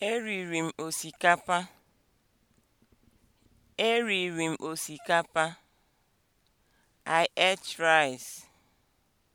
Eriri m osikapa. Eriri m osikapa. I ate rice.